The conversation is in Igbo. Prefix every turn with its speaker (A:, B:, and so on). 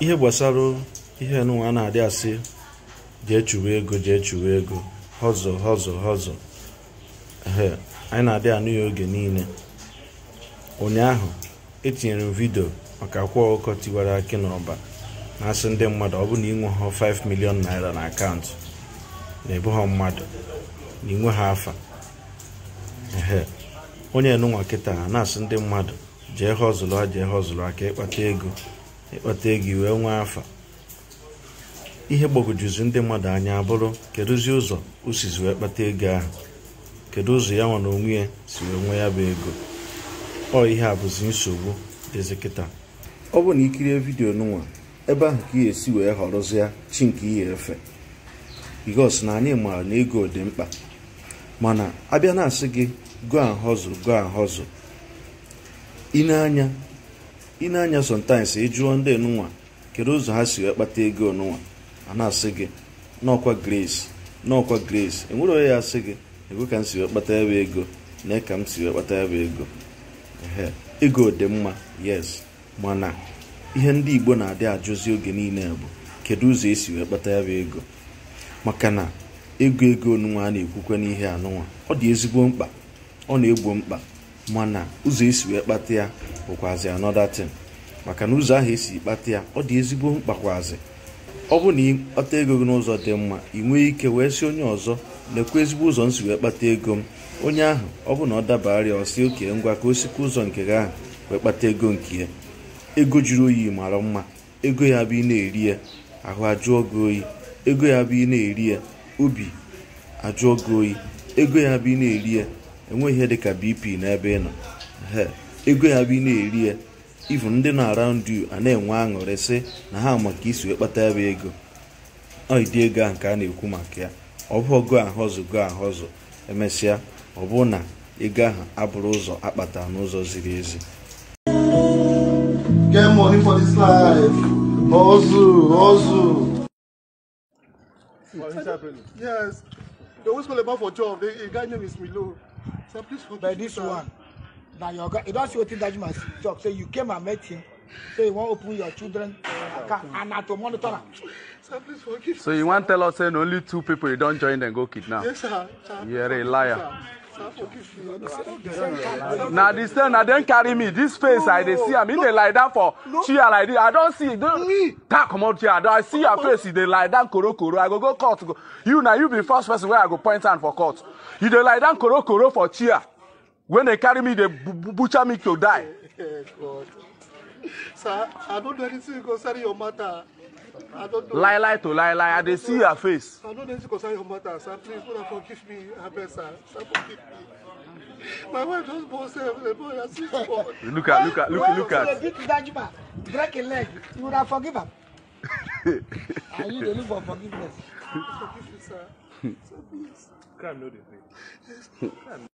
A: ihe gbasara ihe nụnwa na-adị asị jee chuwe ego jee chuwe ego họzọ họzọ họzọ anyị na-adị anụ ya oge niile ụnyaahụ etinyere m vidio maka akwa ọkụkọ tiwara akị n'ọba na-asị ndị mmadụ ọ bụ na inwe ha 5 milion naira na akaụntụ na ebu ha mmadụ na inwe ha afa ehe onye nụnwa kịta na-asị ndị mmadụ jee họzụlụ jee họzụlụ aka ịkpata ego ịkpata ego iwee nwee afa ihe gbagojuzi ndị mmadụ anya abụrụ kedụzi ụzọ usizi wee kpata ego ahụ kedu ụzọ ya nwa na onwe ya si wee nwee ya bụ ego ọ ihe a bụzi nsogbu dịzi kịta ọ bụ na ikirie vidio n'ụwa ebe ahụ ka ị esi wee họrọzịa chi nke ihe efe bikos na anyị maara na ego dị mkpa mana abịa na-asị gị go ahọzụ go ahọzụ ineanya anya ị na-anya sometimes ị e ndị enunwa kedu ụzọ ha si kpata ego onunwa a na-asị gị n'ọkwa grace n'ọkwa grace enwere onye ya asị gị ego ka m si kpata ya ego na ka m si kpata ya ego ego ego dị mma yes mana ihe ndị igbo na-adị ajụzi oge niile bụ kedu ụzọ esi wee kpata ya ego maka na ego ego onunwa a na-ekwukwe n'ihe anụnwa ọ dị ezigbo mkpa ọ na-egbo mkpa mana ụzọ esi wee kpata ya bụkwazi anọda tin maka na ụzọ ahụ esi kpata ya ọ dị ezigbo mkpakwazi ọ bụ na ịkpata ego gị n'ụzọ dị mma ị nwee ike wee sị onye ọzọ lekwa ezigbo ụzọ m si wee kpata ego m onye ahụ ọ bụ na ọ dabarịa ọsị oke ngwa ka o sikwa ụzọ nke gị ahụ wee kpata ego nke ya ego juru oyi mara mma ego ya bụ ị na-eri ya ahụ ajụọ gị oyi ego ya bụ ị na-eri ya obi ajụọ gị oyi ego ya bụ ị na-eri ya enweghị ihe dịka bp n'ebe ị nọ ego ya bụ ị na-eri ya ivu ndị na-around you a na-enwe aṅụrị sị na ha maka isi wee kpata ya ego dị ego ahụ nke a na-ekwu maka ya ọ bụ ọgụ ahụzụ go ahụzụ emesịa ọ bụ na ego ahụ abụrụ ụzọ akpata n'ụzọ ziri ezi
B: What is happening? Yes. They always call about for job. The guy name is Milo. So But this one, now your guy, you don't see wetin Dajima talk. Say you came and met him. Say you wan open your children account and na to monitor am. So you wan tell us say na only two people you don join dem go kidnap? Yes, sir. You are a liar. Sir na the same na dem carry me This face i dey see am e dey lie down for chair like this i don see tap comot chair i see your face e dey lie down korokoro i go go court go you na you be first person wey i go point hand for court you dey lie down korokoro for chair when dey carry me dey butcher me to die. sir i no do anything concerning your matter lie lie to lie lie i dey see her face. i no dey see concern your matter sir please una forgive me abeg sir sir forgive me my wife just born sef the boy na six months. look at look at look, look at. when you see the big dajima break im leg you una forgive am. Ah, and you dey look for forgiveness. forgive you, sir So please. crime no dey pay.